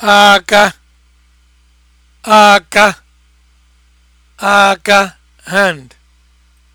aka aka aka hand